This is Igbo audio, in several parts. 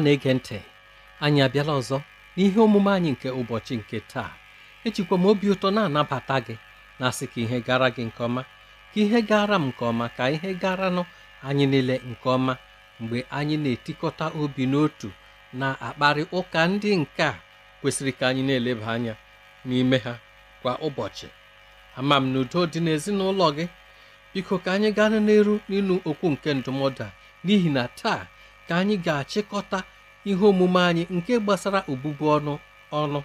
ọma na-ege ntị anyị abịala ọzọ n'ihe omume anyị nke ụbọchị nke taa ejikwa m obi ụtọ na-anabata gị na-asị ka ihe gara gị nke ọma ka ihe gara m nke ọma ka ihe garanụ anyị niile nke ọma mgbe anyị na-etikọta obi n'otu na-akparị ụka ndị nke a kwesịrị ka anyị na-eleba anya n'ime ha kwa ụbọchị ama m na udo dị n'ezinụlọ gị biko ka anyị gaa n'eru n'ịnụ okwu nke ndụmọdụ a n'ihi na taa ka anyị ga-achịkọta ihe omume anyị nke gbasara obubu ọnụ ọnụ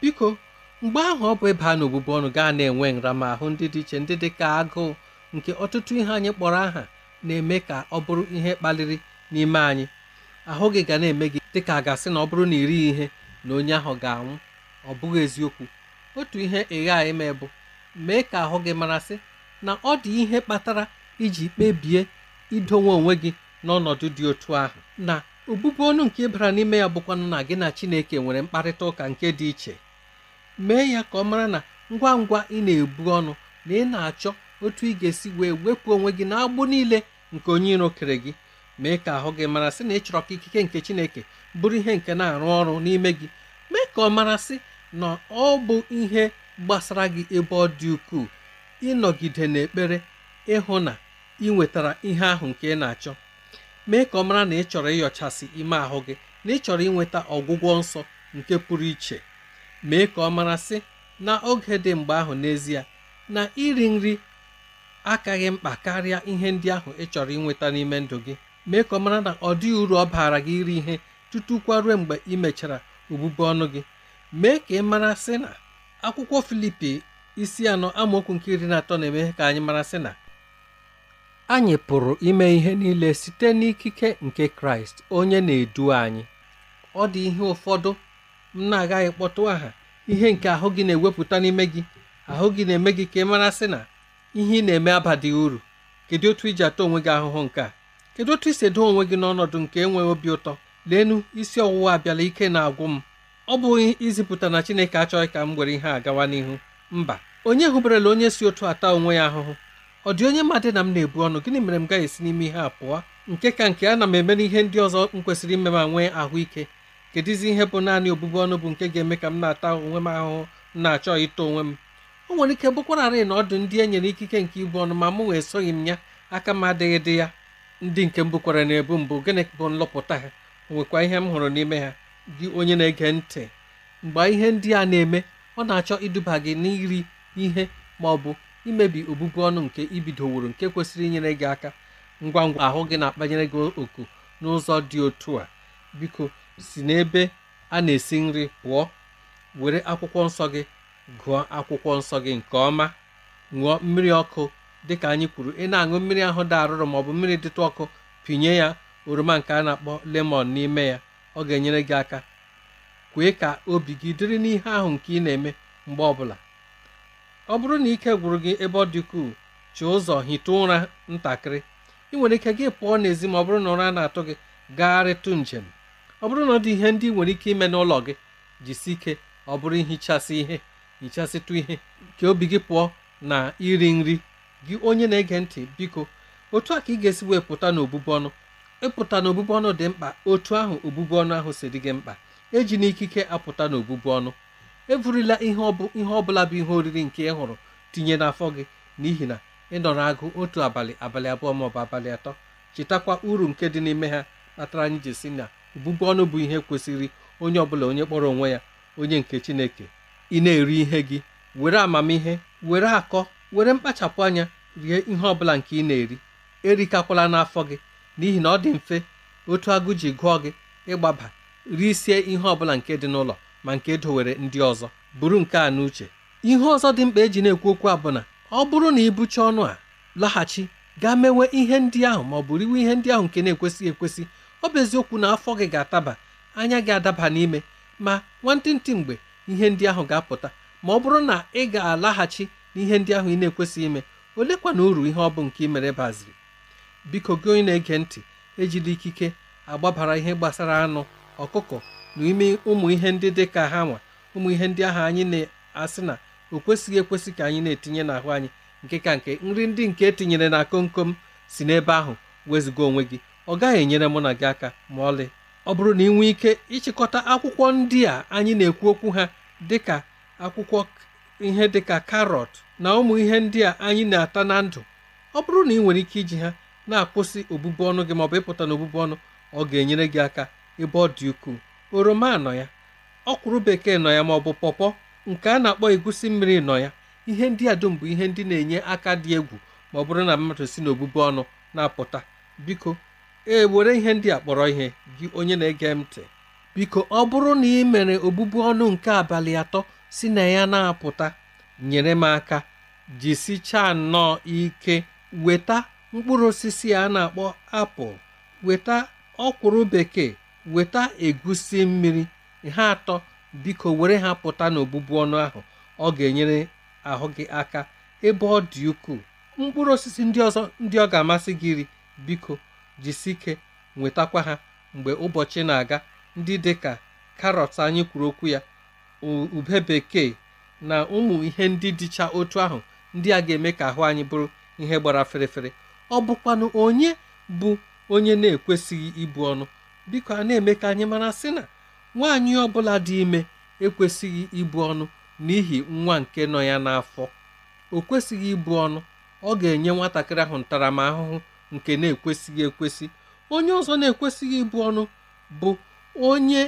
biko mgbe ahụ ọ bụ ịba n'obubu ọnụ gaa na-enwe nramahụ ndị dị iche ndị dị ka agụụ nke ọtụtụ ihe anyị kpọrọ aha na-eme ka ọ bụrụ ihe kpaliri n'ime anyị ahụ gị ga na-eme gị dị ka a ga na ọ bụrụ na iri ihe na onye ahụ ga-anwụ ọ bụghị eziokwu otu ihe ịgha anyị ime bụ mee ka ahụ gị marasị na ọ dị ihe kpatara iji kpebie idonwe onwe gị n'ọnọdụ dị otu ahụ na obubu ọnụ nke bara n'ime ya bụkwanụ na gị na Chineke nwere mkparịta ụka nke dị iche mee ya ka ọ mara na ngwa ngwa ị na-ebu ọnụ na ị na-achọ otu ị ga-esi wee wepụ onwe gị agbụ niile nke onye iro kere gị mee ka ahụ gị mara sị na ị chọrọ ka ikike nke Chineke bụrụ ihe nke na-arụ ọrụ n'ime gị mee ka ọ mara sị na ọ bụ ihe gbasara gị ebe ọ dị ukwuu ịnọgide n'ekpere ịhụ na ị nwetara ihe ahụ nke ị na-achọ mee ka ọ mara na ị chọrọ ịyọchasị ime ahụ gị na ị chọrọ inweta ọgwụgwọ nsọ nke pụrụ iche mee ka ọ mara sị na oge dị mgbe ahụ n'ezie na iri nri akaghị mkpa karịa ihe ndị ahụ ị chọrọ inweta n'ime ndụ gị mee ka ọ mara na ọ dịghị uru ọ baara gị iri ihe tutu kwaruo mgbe ị mechara obubu ọnụ gị mee ka ị mara sị na akwụkwọ Filipi isi anọ amaokwu nke iri na atọ na-eme ka anyị mara sị na anyị pụrụ ime ihe niile site n'ikike nke Kraịst onye na-edu anyị ọ dị ihe ụfọdụ m na-agaghị kpọtụ aha ihe nke ahụ gị na-ewepụta n'ime gị ahụ gị na-eme gị ka ị mara sị na ihe ị na-eme abadịghị uru kedu otu iji ata onwe gị ahụhụ nke a kedu otu isi edo onwe gị n'ọnọdụ nke enweghị obi ụtọ leenu isi ọwụwa abịala ike na-agwụ m ọ bụghị izipụta na Chineke achọghị ka m were ihe a gawa n'ihu mba onye hụberela onye si otu ata onwe ya ahụhụ ọ dị onye madị na m na-ebu ọnụ gịnị mere m gaghị esi n'ime ihe a pụọ nke ka nke a na m eme n'ihe ndị ọzọ m kwesịrị ime ma nwee ahụike kedụzi ihe bụ naanị obụbu ọnụ bụ nke ga-eme ka m na-ata onwe m ahụhụ m na-achọ ịta onwe m o nwere ike bụkwararị na ọdụ ndị e nyere ikike nke ibu ọnụ ma mụ nwa esoghị m ya aka m adịghị dị ya ndị nke m bukwara na-ebu mbụ gịnị bụ nlọpụta ha nwekwa ihe m hụrụ n'ime ha gị onye na-ege ntị mgbe ihe ndị a na-eme ọ na-achọ iduba gị n'iri ihe ma ọ bụ imebi obubu ọnụ nke ibidoworo nke kwesịrị inyere gị aka ngwa ngwa ahụ gị na-akpanyere gị oku n'ụzọ dị otu a biko si n'ebe a na-esi nri pụọ were akwụkwọ nsọ gị gụọ akwụkwọ nsọ gị nke ọma ṅụọ mmiri ọkụ dịka anyị kwuru ị na-aṅụ mmiri ahụ dị arụrụ bụ mmiri dịtụ ọkụ pinye ya oroma nke a na-akpọ lemon n'ime ya ọ ga-enyere gị aka kwee ka obi gị dịrị n'ihe ahụ nke ị na-eme mgbe ọbụla ọ bụrụ na ike gwụrụ gị ebe ọ dị chi ụzọ hite ụra ntakịrị ị nwere ike gị pụọ n'ezi ma ọ bụrụ na ụra na-atụ gị gagharịtụ njem ọ bụrụ na ọ dị ihe ndị nwere ike ime n'ụlọ gị jisi ike ọ bụrụ ihichasị ihe hichasịtụ ihe ka obi gị pụọ na iri nri gị onye na-ege ntị biko otu a ka ị ga-esi wee pụta n'obubu ọnụ ịpụta n'obubu ọnụ dị mkpa otu ahụ obubu ọnụ ahụ si dị gị mkpa eji ikike apụta n'obubu ọnụ eburila ihe ọ bụla bụ ihe oriri nke ị hụrụ tinye n'afọ gị n'ihi na ị nọrọ agụ otu abalị abalị abụọ maọbụ abalị atọ chetakwa uru nke dị n'ime ha kpatara anyị ji si na ụbụbụ ọnụ bụ ihe kwesịrị onye ọbụla onye kpọrọ onwe ya onye nke chineke ị na-eri ihe gị were amamihe were akọ were mkpachapụ anya rie ihe ọbụla nke ị na-eri erikakwala n'afọ gị n'ihi na ọ dị mfe otu agụ ji gụọ gị ịgbaba risie ihe ọbụla nke dị n'ụlọ ma nke e dowere ndị ọzọ buru nke a n'uche ihe ọzọ dị mkpa eji na-ekwu okwu a bụ na ọ bụrụ na ibucha ọnụ a laghachi gaa mewe ihe ndị ahụ ma ọ bụrụ iwe ihe ndị ahụ nke na-ekwesịghị ekwesị ọ bụ eziokwu na afọ gị ga-ataba anya gị adaba n'ime ma nwantịntị mgbe ihe ndị ahụ ga-apụta ma ọ bụrụ na ị ga-alaghachi n'ihe ndị ahụ ị na-ekwesịghị ime olekwa na uru ihe ọ bụ nke ị mere baziri biko gị onye na-ege ntị ejila ikike agbabara ihe gbasara anụ ọkụkọ n'ime ụmụ ihe ndị dị ka ha nwa ụmụ ihe ndị ahụ anyị na-asị na o kwesịghị ekwesị ka anyị na-etinye n'ahụ anyị nke ka nke nri ndị nke etinyere na kom kom si n'ebe ahụ wezụga onwe gị ọ gaghị enyere mụ na gị aka ma ọlị ọ bụrụ na ị nwee ike ịchịkọta akwụkwọ ndị a anyị na-ekwu okwu ha dịka akwụkwọ ihe dịka karọt na ụmụ ihe ndị a anyị na-ata na ndụ ọ bụrụ na ị nwere ike iji ha na-akwụsị obubu ọnụ gị maọbụ ịpụta na obubu ọnụ ọ ga-enyere gị aka ebe ọ dị ukwuu oroma nọ ya ọkwụrụ bekee nọ ya maọbụ pọpọ nke a na-akpọ egusi mmiri nọ ya ihe ndị a dum bụ ihe ndị na-enye aka dị egwu ma ọ bụrụ na mmadụ si n'obubu ọnụ na-apụta biko e were ihe ndị a kpọrọ ihe gị onye na-ege m ntị biko ọ bụrụ na ị mere obubu ọnụ nke abalị atọ si na ya na-apụta nyere m aka jisichaa nnọọ ike weta mkpụrụ osisi a na-akpọ apụl weta ọkwụrụ bekee weta egusi mmiri ha atọ biko were ha pụta n'obụbu ọnụ ahụ ọ ga-enyere ahụ gị aka ebe ọ dị ukwuu mkpụrụ osisi ndị ọzọ ndị ọ ga-amasị gị iri biko jisi ike nwetakwa ha mgbe ụbọchị na-aga ndị dị ka karọt anyị kwuru okwu ya ube bekee na ụmụ ihe ndị dịcha otu ahụ ndị a ga-eme ka ahụ anyị bụrụ ihe gbara ferefere ọ bụkwanụ onye bụ onye na-ekwesịghị ibu ọnụ biko a na-eme ka anyị mara sị na nwaanyị ọbụla dị ime ekwesịghị ibu ọnụ n'ihi nwa nke nọ ya n'afọ o kwesịghị ibu ọnụ ọ ga-enye nwatakịrị ahụ ntaramahụhụ nke na-ekwesịghị ekwesị onye ọzọ na-ekwesịghị ibu ọnụ bụ onye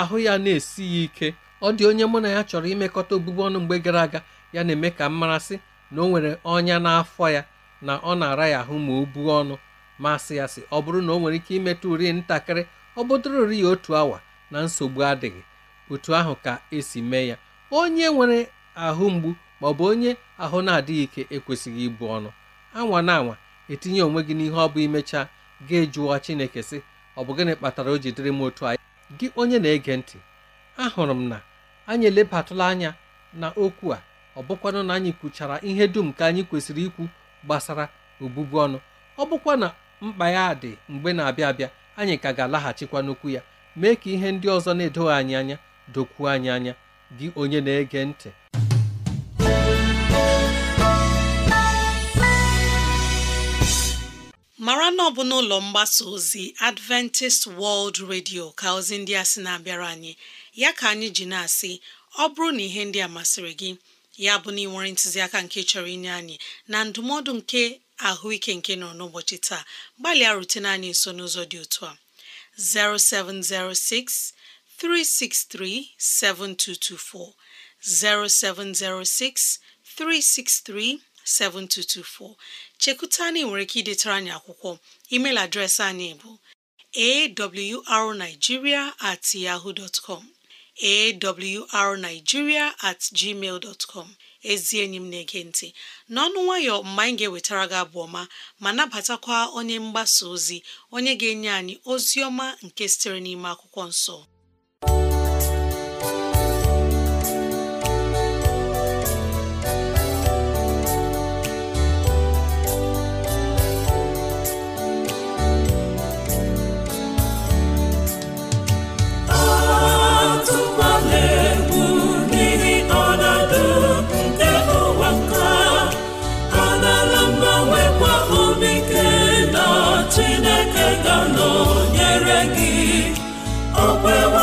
ahụ ya na-esighị ike ọ dị onye mụ na ya chọrọ imekọta obubu ọnụ mgbe gara aga ya na-eme ka mmarasị na o nwere ọnya n'afọ ya na ọ na-ara ya ahụ ma o buo ọnụ masị ya sị ọ bụrụ na o nwere ike imetụ uri ntakịrị ọ bụtụrụ ya otu awa na nsogbu adịghị otu ahụ ka esi mee ya onye nwere ahụ mgbu ma ọ bụ onye ahụ na-adịghị ike ekwesịghị ibu ọnụ anwa na anwa etinye onwe gị n'ihe ọ bụ imechaa ga jụọ Chineke sị ọ bụ gịnị kpatara o jidere m otu anyị gị onye na-ege ntị ahụrụ m na anyị elebatụla anya na okwu a ọ bụkwanụ na anyị kwuchara ihe dum ka anyị kwesịrị ikwu gbasara obubu ọnụ ọ bụkwa na mkpa ya dị mgbe na-abịa abịa anyị ka ga-alaghachikwa n'okwu ya mee ka ihe ndị ọzọ na-edoghị anyị anya dokwuo anyị anya gị onye na-ege ntị mara na ọ bụ n'ụlọ mgbasa ozi Adventist World Radio ka ozi ndị a sị na-abịara anyị ya ka anyị ji na-asị ọ bụrụ na ihe ndị a masịrị gị ya bụ na ị nwere ntụziaka nke chọrọ inye anyị na ndụmọdụ nke ike nke nọ n'ụbọchị taa gbalịa rutene anyị nso n'ụzọ dị otu a 0706 363 7224 0706 363 7224 chekuta anyị nwere ike idetara anyị akwụkwọ email adreesị anyị bụ awrnigeria at ezi enyi m na-ege ntị n'ọnụ nwayọ mgbe anyị ga-ewetara gị abụ ọma ma nabatakwa onye mgbasa ozi onye ga-enye anyị ozi ọma nke sitere n'ime akwụkwọ nsọ okwe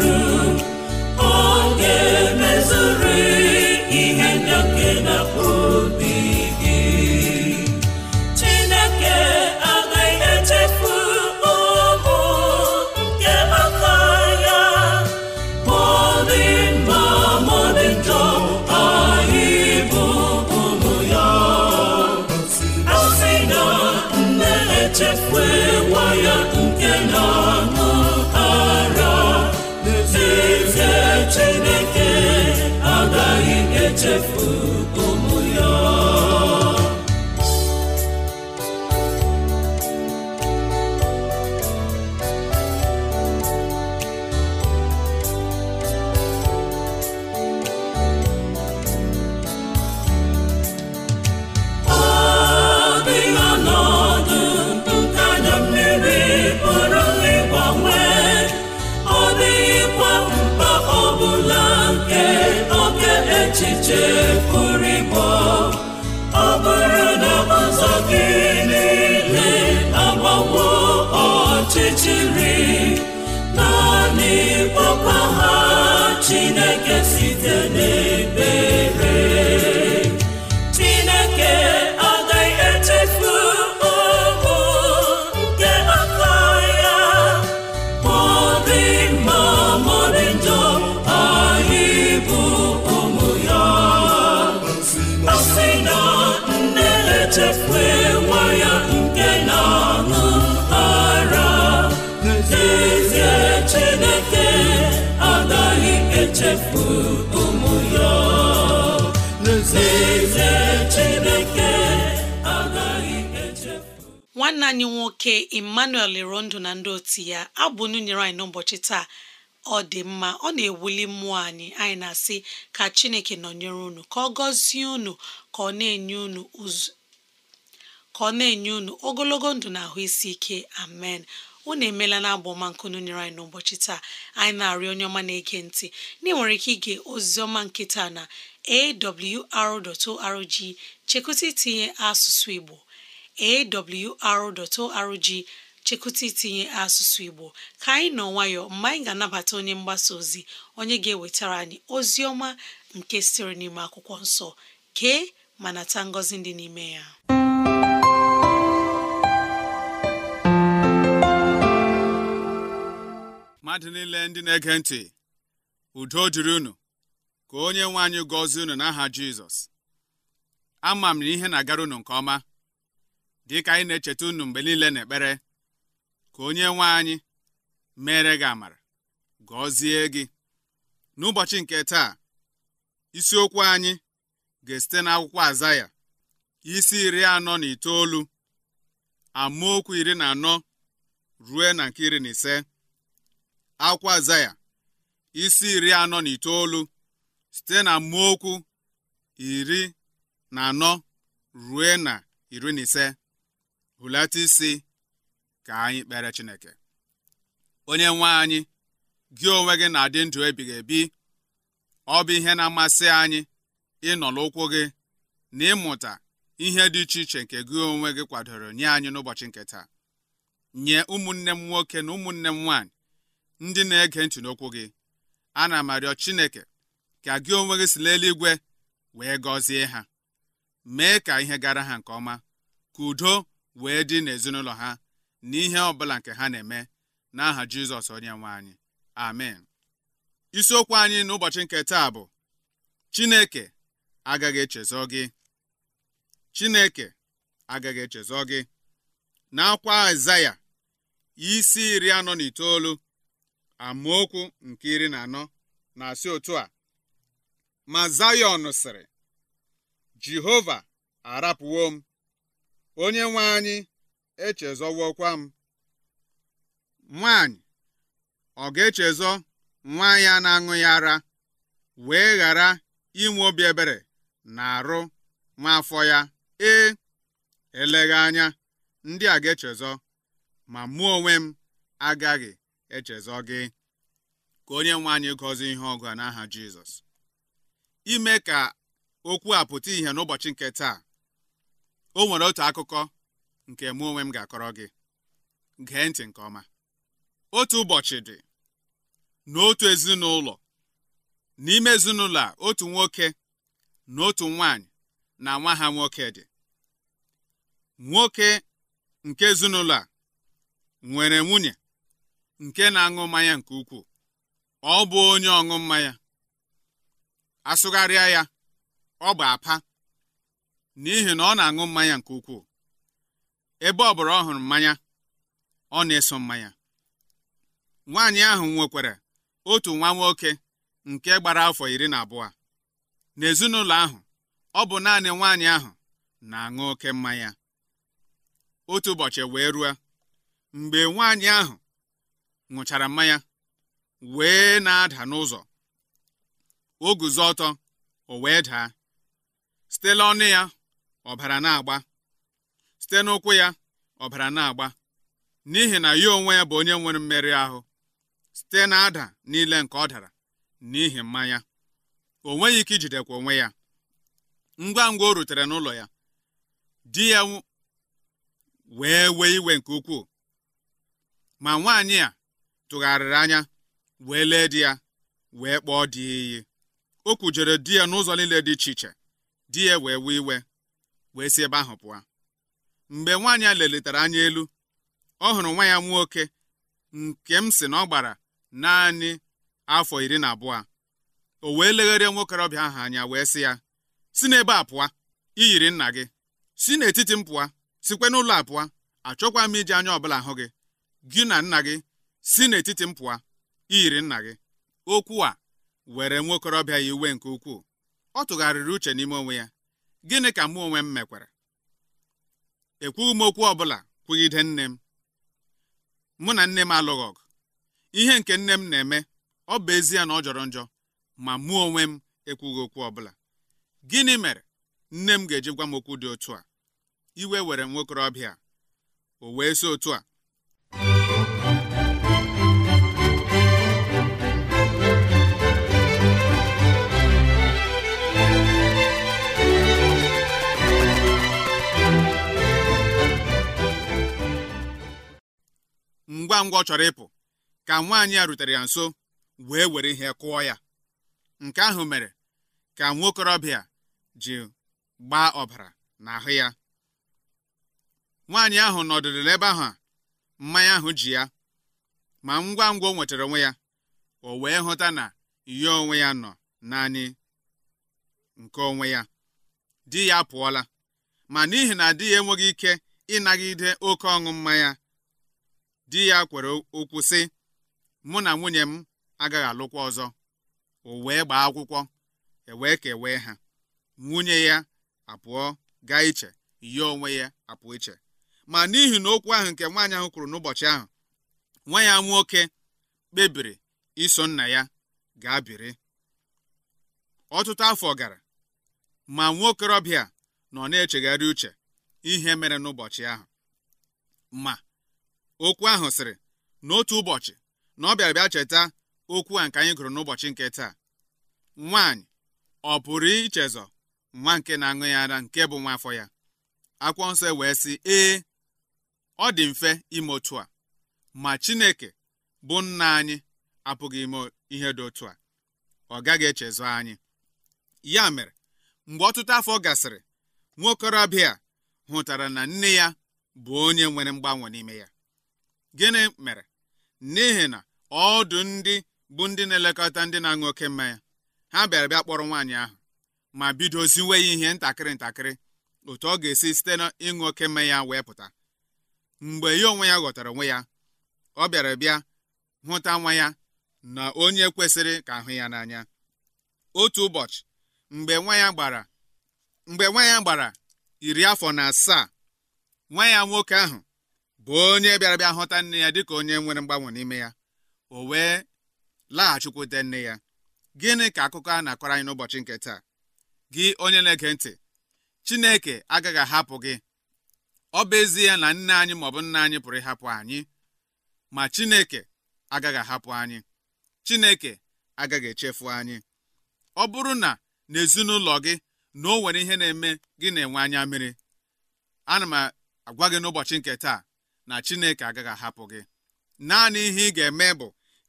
Baby chefu Chineke nwanne anyị nwoke emmanuel irondu na ndị otu ya abụ n'ụnyere anyị n'ụbọchị taa ọ dị mma ọ na-ewuli mmụọ anyị anyị na-asị ka chineke nọnyere unu ka ọ gọzie unu ka ọ na-enye unu ka ọ na-enye ogologo ndụ na ahụ isi ike amen unu emela na ọma nke nụnyere anyị n'ụbọchị taa anyị na-arịọ onye ọma na-ege ntị ndị nwere ike ige oziọma nkịta na awr.org chekwụta itinye asụsụ igbo awr.org chekwụta itinye asụsụ Igbo ka anyị nọ nwayọ mgbe anyị ga-anabata onye mgbasa ozi onye ga-ewetara anyị ozi ọma nke siri n'ime akwụkwọ nsọ kee ma nata ngọzi dị n'ime ya mmadụ niile ndị na-ege ntị udo jụrụ unu ka onye nwe anyị gọzie unu n'aha Jizọs ama m na ihe na-agara unu nke ọma dị ka anyị na-echeta unu mgbe niile n'ekpere ka onye nwe anyị mere gị amara gọzie gị n'ụbọchị nke taa isiokwu anyị ga-esite n'akwụkwọ azaya isi iri anọ na itoolu amaokwu iri na anọ rue na nke iri na ise akwụkwọ azaya isi iri anọ na itoolu site na amaokwu iri na anọ rue na iri na ise hulata isi ka anyị kpere Chineke onye nwe anyị gị onwe gị na-adị ndụ ebighị ebi ọ bụ ihe na-amasị anyị ịnọ n'ụkwụ gị na ịmụta ihe dị iche iche nke gị onwe gị kwadoro nye anyị n'ụbọchị nke taa nye ụmụnne m nwoke na ụmụnne m nwaanyị ndị na-ege ntị n'okwu gị ana m arịọ Chineke ka gị onwe gị si n'eluigwe wee gọzie ha mee ka ihe gara ha nke ọma ka udo wee dị n'ezinụlọ ha na ihe ọ bụla nke ha na-eme n'aha Jizọs onye nwe anyị amen isiokwu anyị n'ụbọchị nke taa bụ Chineke agaghị echezọ gị Chineke agaghị echezọ gị Na-akwa Aịzaya isi iri anọ na itoolu amaokwu nke iri na anọ na-asị otu a ma Zayọn sịrị Jehova arapụwo m onye nwe anyị echezọwokwa m nwanyị ọ ga-echezọ nwa ya na-aṅụ ya ara wee ghara inwe obi ebere na arụ nwa afọ ya ee eleghị anya ndị a ga-echezọ ma mụ onwe m agaghị echezọ gị ka onye nwe anyị gọzie ihe ọgụ a n'aha Jizọs ime ka okwu a pụta ìhè n'ụbọchị nke taa o nwere otu akụkọ nke mụ onwe m ga-akọrọ gị gee ntị nke ọma otu ụbọchị dị n'otu ezinụlọ n'ime ezinụlọ a otu nwoke na otu nwanyị na nwa ha nwoke dị nwoke nke ezinụlọ a nwere nwunye nke na-aṅụ mmanya nke ukwuu ọ bụ onye ọṅụ mmanya asụgharịa ya ọ bụ apa n'ihi na ọ na-aṅụ mmanya nke ukwuu ebe ọ bụla ọ hụrụ mmanya ọ na-eso mmanya nwaanyị ahụ nwekwara otu nwa nwoke nke gbara afọ iri na abụọ n'ezinụlọ ahụ ọ bụ naanị nwaanyị ahụ na-aṅụ oke mmanya otu ụbọchị wee ruo mgbe nwaanyị ahụ ṅụchara mmanya wee na-ada n'ụzọ o guzo ọtọ o wee daa site n'ọnụ ya ọbara na-agba site n'ụkwụ ya ọbara na-agba n'ihi na ya onwe ya bụ onye nwere mmeri ahụ site na ada niile nke ọ dara n'ihi mmanya o nweghị ike ijidekwa onwe ya ngwa ngwa o rutere n'ụlọ ya di ya wee wee iwe nke ukwuu ma nwaanyị a tụgharịrị anya wee lee di ya wee kpọọ di iyi o kwujere di ya n'ụzọ niile dị iche iche di ya wee wee iwe wee si ebe ahụ pụọ mgbe nwaanyị a lelitere anya elu ọ hụrụ nwa ya nwoke nke m si na ọ gbara naanị afọ iri na abụọ o wee legharịa nwokorobịa ahụ anya wee sị ya si n'ebe a pụọ i yiri nna gị si n'etiti m pụọ sikwe n'ụlọ a pụọ achọkwa m iji anya ọbụla hụ gị gị na nna gị si n'etiti m pụọ i yiri nna gị okwu a were nwokorobịa ya iwe nke ukwuu ọ tụgharịrị uche n'ime onwe ya gịnị ka mụ onwe m mekwara ekwughị m okwu ọbụla kwugide nne m mụ na nne m alụghị ọgụ ihe nke nne m na-eme ọ bụ ezie na ọ jọrọ njọ ma mụ onwe m ekwughị okwu ọbụla gịnị mere nne m ga-eji gwa m okwu dị otu a iwe were nwokorobịa o wee si otu a ngwa ngwa chọrọ ịpụ ka nwaanyị a rutere ya nso wee were ihe kụọ ya nke ahụ mere ka nwokorobịa ji gbaa ọbara n'ahụ ya nwaanyị ahụ nọdụrụ n'ebe ahụ a mmanya ahụ ji ya ma ngwa ngwa nwetara onwe ya o wee hụta na ihe onwe ya nọ naanị nke onwe ya di ya apụọla ma n'ihi na di ya enweghị ike ịnagide oke ọṅụ mmanya di ya kwere okwu sị mụ na nwunye m agaghị alụkwa ọzọ o wee gbaa akwụkwọ e wee kewee ha nwunye ya apụọ gaa iche ya onwe ya apụọ iche ma n'ihi na okwu ahụ nke nwaanyị ahụ kwuru n'ụbọchị ahụ nwa ya nwoke kpebiri iso nna ya gaa biri ọtụtụ afọ gara ma nwa okorobịa nọ na-echegharị uche ihe mere n'ụbọchị ahụ ma okwu ahụ sịrị n'otu ụbọchị na ọ bịara bịa cheta okwu a nke anyị gụrụ n'ụbọchị nke taa nwaanyị ọ pụrụ ichezọ nwa nke na-aṅụ ya ara nke bụ nwa afọ ya akwụkwọ nsọ e wee sị ee ọ dị mfe ime otu a ma Chineke bụ nna anyị apụghị ime ihe dị otu a ọ gaghị echezọ anyị ya mere mgbe ọtụtụ afọ gasịrị nwa okorobịa hụtara na nne ya bụ onye nwere mgbanwe n'ime ya gịnị mere n'ihi na ọdụ ndị bụ ndị na-elekọta ndị na-aṅụ oke mmanya ha bịara bịa kpọrọ nwaanyị ahụ ma bidoziwe ya ihe ntakịrị ntakịrị otu ọ ga-esi site n'ịṅụ oke mmanya wee pụta mgbe ya onwe ya ghọtara onwe ya ọ bịara bịa hụta nwa ya na onye kwesịrị ka ahụ ya n'anya otu ụbọchị mgbe nwa ya gbara mgbe nwa ya gbara iri afọ na asaa nwa ya nwoke ahụ bụ onye bịara bịa nne ya dịka onye nwere mgbanwe n'ime ya o wee laghachikwute nne ya gịnị ka akụkọ a na-akọrọ anyị n'ụbọchị nke taa gị onye na-ege ntị Chineke agaghị ahapụ gị ọ bụ ezie na nne anyị maọbụ nna anyị pụrụ ịhapụ anyị ma Chineke agaghị ahapụ anyị Chineke agaghị echefu anyị ọ bụrụ na n'ezinụlọ gị na o nwere ihe na-eme gị na-enwe anya mmiri ana m agwa gị n'ụbọchị nke taa na chineke agaghị ahapụ gị naanị ihe ị ga-eme bụ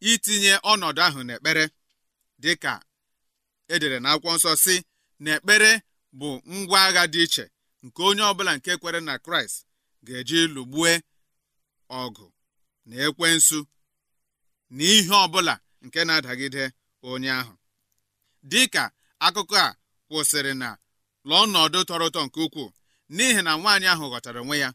itinye ọnọdụ ahụ n'ekpere dịka edere na akwụkwọ nsọ si na ekpere bụ ngwa agha dị iche nke onye ọbụla nke kwere na kraịst ga-eji lụgbue ọgụ na ekwe nsu na ihe ọbụla nke na-adagide onye ahụ dịka akụkọ a kwụsịrị na lụọ ọnọdụ tọrọ ụtọ nke ukwuu n'ihi na nwaanyị ahụ ghọtara onwe ya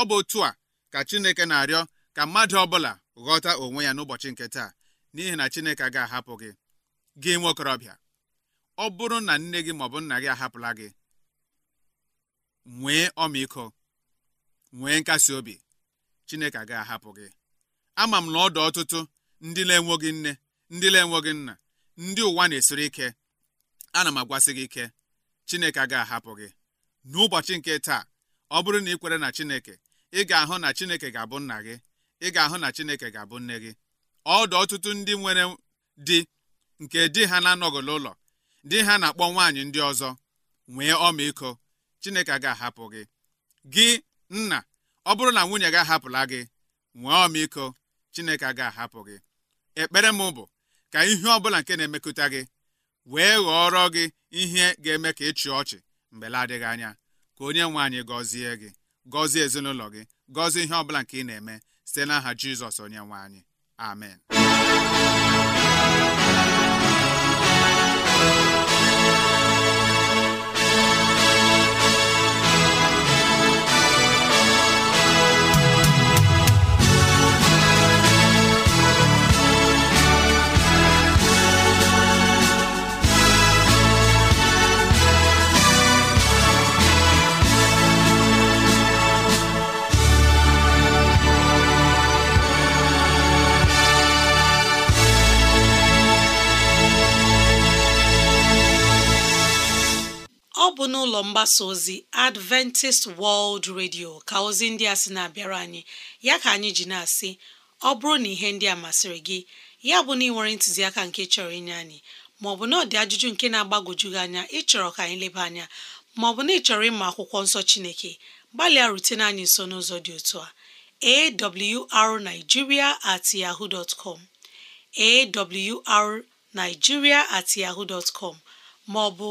ọ bụ otu a ka Chineke na-arịọ ka mmadụ ọbụla ghọta onwe ya n'ụbọchị nke taa n'ihi na Chineke ga-ahapụ gị gị nwa ọ bụrụ na nne gị maọbụ nna gị ahapụla gị nwee ọmịiko nwee nkasi obi Chineke ga ahapụ gị ama m na ọ dị ọtụtụ ndị na-enweghị nne ndị na-enweghị nna ndị ụwa na-esiri ike ana m agwasị gị ike Chineke ga ahapụ gị n'ụbọchị nke taa ọ bụrụ na ị kwere na Chineke ị ga-ahụ na Chineke ga-abụ nna gị ị ga-ahụ na Chineke ga-abụ nne gị ọdụ ọtụtụ ndị nwere di nke di ha na-anọghị n'ụlọ di ha na-akpọ nwaanyị ndị ọzọ nwee ọmịiko Chineke ga-ahapụ gị gị nna ọ bụrụ na nwunye gị ahapụla gị nwee ọmịiko Chineke ga-ahapụ gị ekpere m bụ ka ihe ọ bụla nke na-emekụta gị wee ghọọrọ gị ihe ga-eme ka ịchị ọchị mgbe la adịghị anya ka onye nwaanyị gọzie gị gọzie ezinụlọ gị gọzie ihe ọbụla nke ị na-eme site n'aha Jizọs onye nwe anyị amen ọ bụ n'ụlọ mgbasa ozi Adventist World Radio ka ozi ndị a sị na-abịara anyị ya ka anyị ji na-asị ọ bụrụ na ihe ndị a masịrị gị ya bụ na ị nwere ntụziaka nke chọrọ inye anyị maọbụ na ọdị ajụjụ nke na-agbagwoju gị anya ịchọrọ ka anyị leba anya maọbụ na ị chọrọ ịma akwụkwọ nsọ Chineke gbalịa rutene anyị nso n'ụzọ dị otu a awrnigeria at yahoo dot com awrnigeria at yahoo dot com maọbụ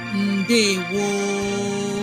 ndewo